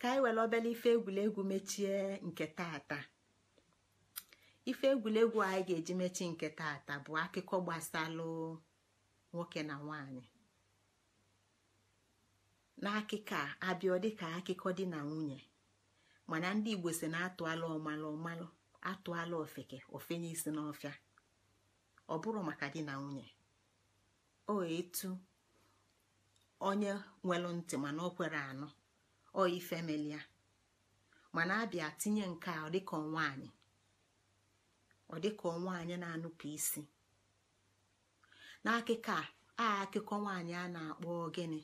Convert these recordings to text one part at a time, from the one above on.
ka anyị were obere ife egwuregwu mechie nke taata ife egwuregwu anyị ga-eji mechie nke tata bụ akụkọ gbasalụ nwoke na nwanyị n'akụkọ a abịa dịka akụkọ di na nwunye mana ndị igbo si na atụala ọmalụ ọmalụ atụala ofeke ofenye isi n'ọfịa ọ bụrụ maka di na nwunye o etu onye nwere ntị mana o kwere anụ oyi femeli ya ah. mana abịa tinye nke a nwanyị nwaanyị dịka nwaanyị na-anụpụ isi n'akụkọ a akụkọ nwaanyị a na-akpọ gịnị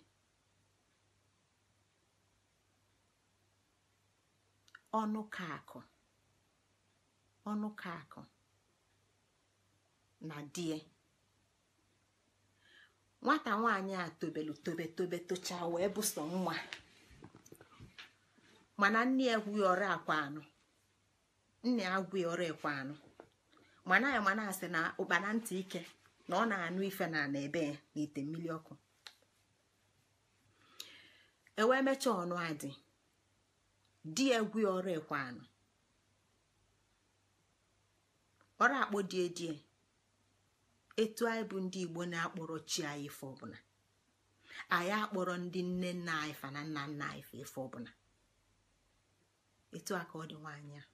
ọnụ ka na die nwata nwaanyị a tobelu tobe tobe tocha wee bụso nwa mana nne ya gwughị ọrụ akwa anọ nne ya gwughị ọrụ ekwe anọ mana ya mana asị na ụkpana ntị ike na ọ na-anụ ife na ana ebe ya na ite mmiri ọkụ ewee mechaa ọnụ adị di ya gwughị ọrụ ekwe anọ ọrụ akpọ die die etu anyị bụ ndị igbo na-akpọrọ chi anyị ife ọbụla anyị akpọrọ ndị nne nna anyị fa na nna nna anyị fa ife ọbụla etu a ka ọ dị nwaanyị a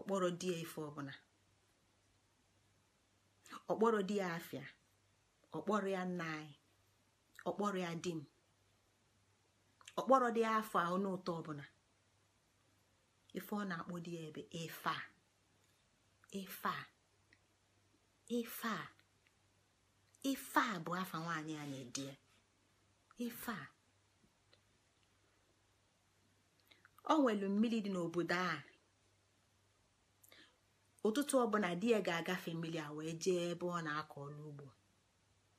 ọkpọrọ di ya ife ọbụla ọkpọrọ di ya afịa ọkpọrọ ya nna anyị ọkpọrọ ya di m ọkpọrọ die ya afọ ahụ n'ụtọ ọbụla ife ọ na-akpọ di ya ebe ife a ife a ife a ife a bụ afa nwaanyị a na-edi ya ife a o nwelu mmiri dị n'obodo a ụtụtụ ọbụla di ya ga-agafe mmiri a wee jee ebe ọ na-akọ ọlụ ugbo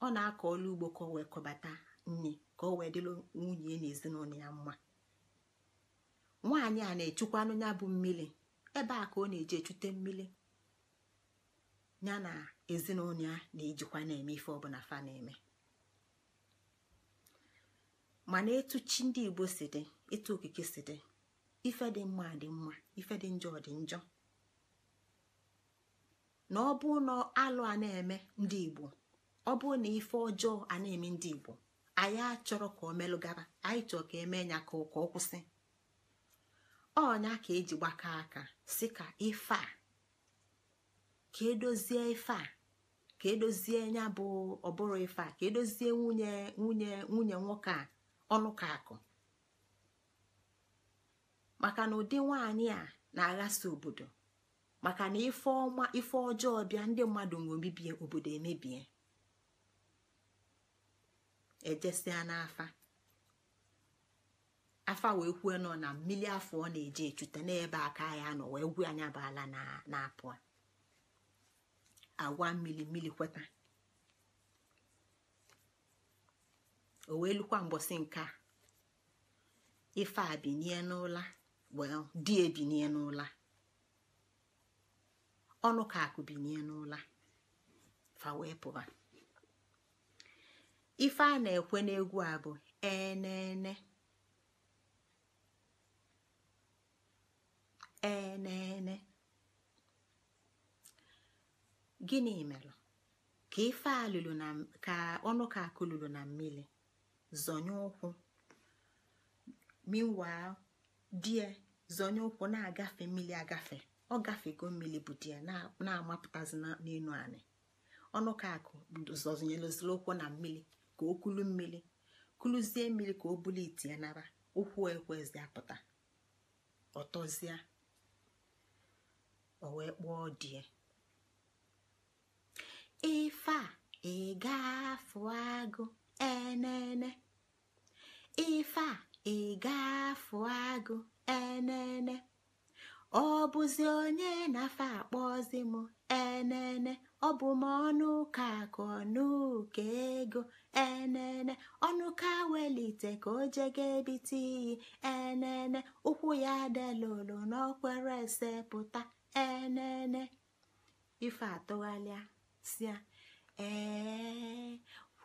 ọ na-akọ ọrụ ugbo ka o wee kọbata nri ka o wee dịrị nwunye na ezinụlọ ya mma nwaanyị a na-echukwanụ ya bụ mmiri ebe a ka ọ na-eji echute mmiri ya na ezinụlọ ya na-ejikwa na-eme ife ọbụla fa na-eme mana etu chi ndị igbo si dị etu okike si dị ife dị mma dị mma ife dị njọ dị njọ na ọ bụ na alụ a na-eme ndị igbo ọ na ife ọjọọ a na-eme ndị igbo anyị achọrọ ka o melụgara anyị chọrọ ka emee ya ka ọ kwụsị ọnya ka eji gbaka aka si ka ife a ka edozie ife a ka edozie ya bụ ọbụrụ ife a ka edozie nwunye nwunye nwunye nwoke a ọnụ ka akụ maka na ụdị nwanyị a na-aghasa obodo maka na ife ọma ife ọjọọ bịa ndị mmadụ nwe omebie obodo emebie ejesịa n'afa afa wee kwue nọ na mmiri afọ ọ na-eje echute n'ebe aka ya nọ wee gwu anya bụ ala na-apụ agwa mmiri mmiri kweta o wee lukwa mbọsị nke a ife a binie n'ụla well di ebinie n'ụla ọnụ ka akụ binie n'ụla fa wee pụba ife a na-ekwe n'egwu a bụ enene enene gịnị mere ka ife a lụrụ na ka ọnụ ka akụ lụrụ na mmiri zọnye ụkwụ meanwhile die zọnye ụkwụ na-agafe mmiri agafe ọ gafego mmiri bụ die na-amapụtazi n'elu anị ọnụ ka akụ zọnyelozila ụkwụ na mmiri ka o kulu mmiri kuluzie mmiri ka o bụla iti ya nara ụkwụ ekwezi apụta ọtọzie o wee kpụọ die ife a ịgafu agụ enene ife a ịgafu agụ enene ọ bụzi onye na-afa akpọzi m enene ọ bụ m ọnụ ka akụ ọnụ ego enene ọnụ ka welite ka o jega ebite iyi enene ụkwụ ya delolo n'ọkwere ese pụta enene ife atụghalịa sia ee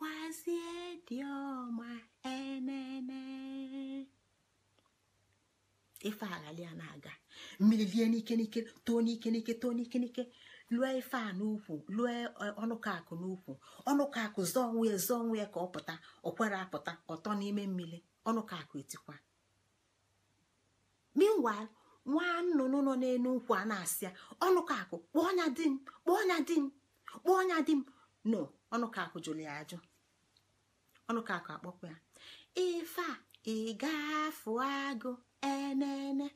dịkwazie dị ọma enene ife aghalia na-aga mmiri lie n'ike n'ike too n'ike n'ike too n'ike n'ike lụọ ife a n'ukwu lụọ ọnụkakụ n'ukwu ọnụkakụ zọọ onwe ya zọọ onwe ya ka ọ pụta ọ kwere apụta ọtọ n'ime mmiri ọnụkakụ etikwa meanwhile nwa nnụnụ nọ n'elu ukwu a na-asị ya ọnụkakụ kpọọ nya di m kpọọ nya di m kpọọ nya di m no ọnụkakụ jụrụ ya ajụ ọnụkakụ akpọkwa ya ife a ịgafụ agụ enene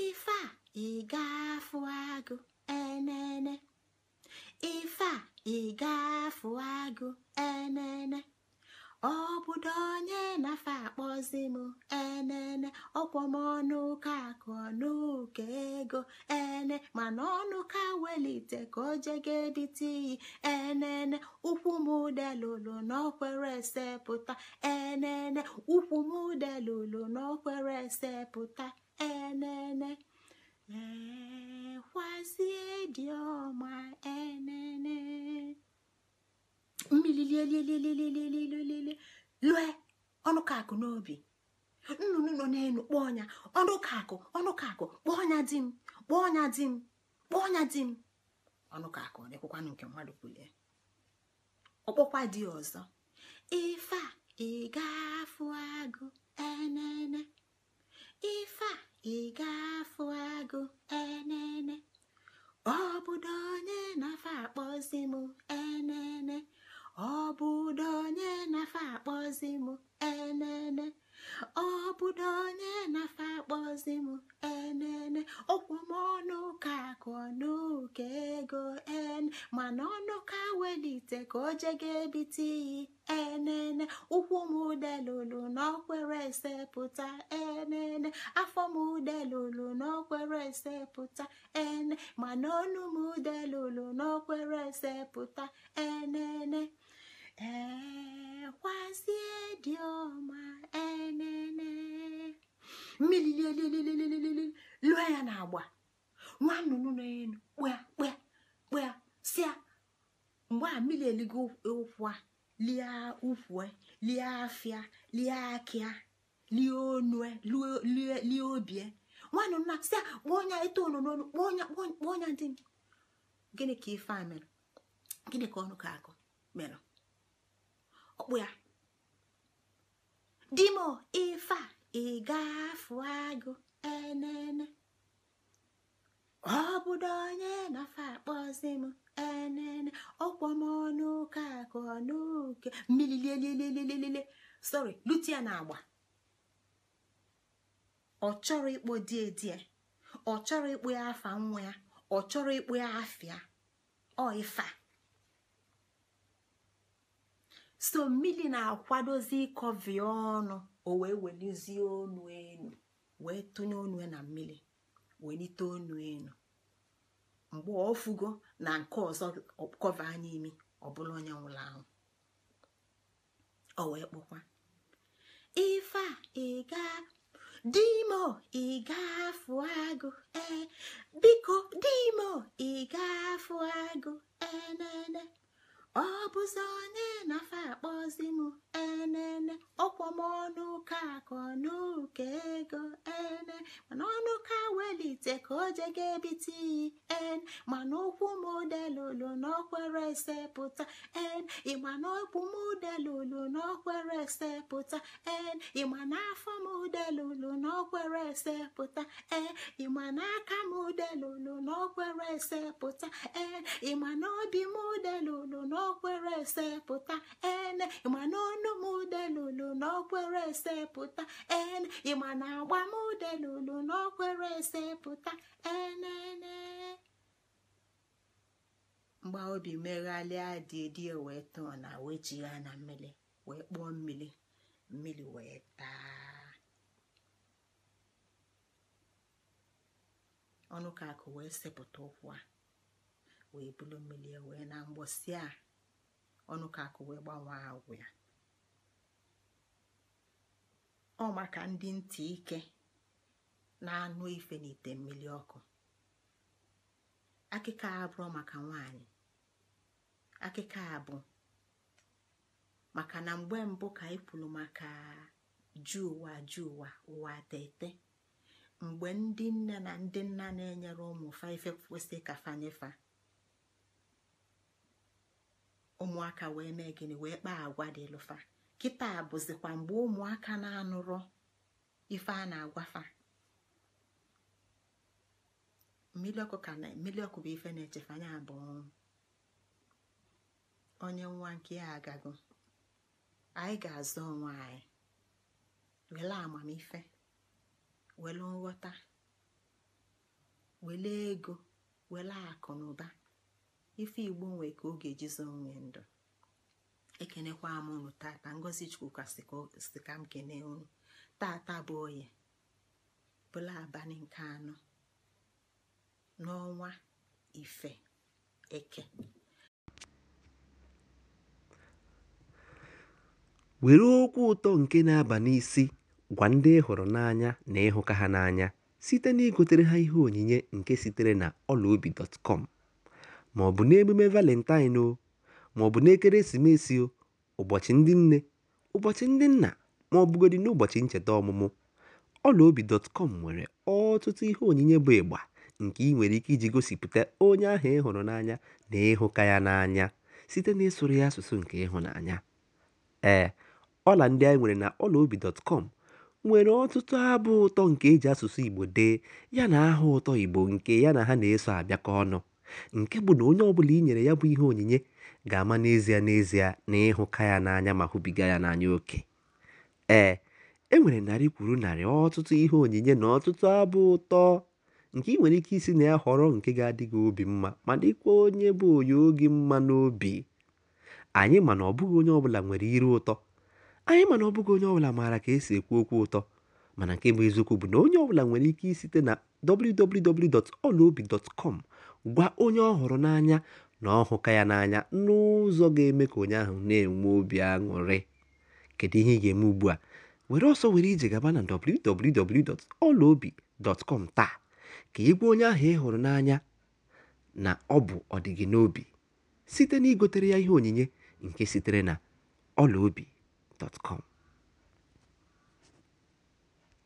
ife a ịgafụ agụ enene ife agụ enene obodo onye nafe akpọzi m enene ọkwọm ọnụ ụka akụ ọnụ ego e ene mana ọnụ ka welite ka o jega ebite iyi enene ụkwụ m delulu n'ọkwere esepụta enene ụkwụ m delulu n'ọkwere esepụta enene ekwazie dị ọma enene mmiri lilililililililile lue ọnụ ka akụ n'obi nnụnụ nọ n'elu kpọọ ọnya ọnụkakụ ọnụkakụ kpọọ ọnya di m kpọọ ọnya di m kpọọ ọnya di m ọnụkakụ dịkwụkwanụ nke mmadụ kwulie ọkpọkwa dị ọzọ ife a afụ agụ enene ife a afụ agụ enene ọ bụdo onye na-afa akpọzi m ite ka o je ga-ebite iyi enene ụkwụ m udelulu n'ọkwere esepụta enene afọ m udelulu n'ọkwere esepụta ene mana ọnụ m udelulu n'ọkwere esepụta enene ekwazie dị ọma enene mmiri lụọ ya na agba nwa nnụnụ na elu kpụa kpụa kpụa sịa mgbe a mmiri eligo ụkwụ lie ụkwụ e, lie afịa lie akịa lie onue lie obie nwanne nna si a kpọọ onye itoolu n'ọnụ kpọọ onye kpọọ onye dị m gịnị ka ife a mere gịnị ka ọnụ ka akụ mere ọkpụ ya dimo ife a ịgafu agụ enene ọ bụdo onye akpọzi m enene ọkpọmọnụ ka akụ n'oke mmiri lelelelelele sorry lute na agba ọ chọrọ ịkpọ die die ọ chọrọ ịkpọ ya afa nwa ya ọ chọrọ ịkpọ ya afịa ọ so mmiri na-akwadozi ịkọvi ọnụ o wee welizie ọnụ enu wee tụnye ọnụ na mmiri welite ọnụ enu mgbe ọfụgo na nke ọzọ kọva anya imi ọbụla onye nwụrụ ahụ ọ wee kpọkwa ife a ịga dimo ịgafụ agụ ee biko dimo ịgafụ agụ enene ọ bụzọ onye na-afa akpọzi m enene ọkwọ m ọnụ ụka akọ n'ụka ego ene mana ọnụ ka welite ka o jega ebite iyi en mana okwu m delulu n'okwere esepụta en ịma na okwu m delulu n'okwere esepụta en ịma na afọ m delulu n'okwere esepụta en ịma na aka m delulu n'okwere esepụta en ịma obi m delulu n'okwere n'ọkwere esepụta ene ịma na m udelulu esepụta ene ịma na agba m udelulu n'ọkwere esepụta enene mgba obi meghalịa dị dị wee tọọ na wee jigha na mmiri wee kpụọ mmiri mmiri wee taa ọnụ ka akụ wee sepụta ụkwụ a wee bulu mmiri wee na mgbọsị a ọnụ ka akụ wee gbanwe agwụ ya ọ maka ndị ntị ike na-anụ ife n'ite mmiri ọkụ akịka a abụọ maka nwanyị akịka a bụ maka na mgbe mbụ ka anyị maka ju ụwa ụwa ụwa tete mgbe ndị nne na ndị nna na-enyere ụmụ faife kwesị ka fanyefa ụmụaka wee mee gịnị wee kpaa agwa dị lụfa kịta bụzikwa mgbe ụmụaka na anụrụ ife a na-agwafa mmiri ọkụ ka na mmiri ọkụ bụ ife na-echefanye abụọ onye nwa nke ya agago anyị ga-azụ onwe anyị were amamife were nghọta were ego were akụ na ụba ife igbo nwe ka oge jizo nwee ndụ ekenekwa m unu tata ngozi chukwuka si ka m kene unu tata bụ oye bụla abalị nke anọ n'ọnwa ife eke were okwu ụtọ nke na-aba n'isi gwa ndị ịhụrụ n'anya na ịhụka ha n'anya site na igotere ha ihe onyinye nke sitere na obi dọtkọm ma ọ bụ n'emume Valentine o, ma ọ bụ n'ekeresimesi o, ụbọchị ndị nne, ụbọchị ndị nna ma ọ bụgodị n'ụbọchị ncheta ọmụmụ, ọlaobi.com nwere ọtụtụ ihe onyinye bụ ịgba nke ị nwere ike iji gosipụta onye ahụ ị hụrụ n'anya na ịhụka ya n'anya site na ịsụrụ ya asụsụ nke ịhụnanya. Ee, ọla ndị anyị nwere na ọlaobi.com nwere ọtụtụ abụ ụtọ nke eji asụsụ Igbo dee yana aha ụtọ Igbo nke ya na ha na-eso abịakọ ọnụ. nke bụ na onye ọbụla i nyere ya bụ ihe onyinye ga-ama n'ezie n'ezie na ịhụka ya n'anya ma hụbiga ya n'anya oke ee e nwere narị kwuru narị ọtụtụ ihe onyinye na ọtụtụ abụ ụtọ nke ị nwere ike isi na ya họrọ nke ga-adị gị obi mma ma dịkwa onye bụ onye oge mma n'obi anyị ma na ọbụghị onye ọbụla nwere iru ụtọ anyị ma na ọbụghị onye ọbụla maara ka esi ekwu okwu ụtọ mana nke bụ eziokwu bụ na onye ọbụla nwere ike isite na www.olobi.com. gwa onye ọ hụrụ n'anya na ọ hụka ya n'anya n'ụzọ ga-eme ka onye ahụ na-enwe obi aṅụrị kedu ihe ị ga-eme ugbu a were ọsọ were ije gaba na www.ọlaobi.com taa ka ị gwa onye ahụ ị hụrụ n'anya na ọ bụ ọdịgị n'obi site na igotere ya ihe onyinye nke sitere na ọlaobi.com